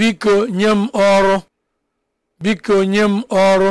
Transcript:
biko nye m ọrụ biko nye m ọrụ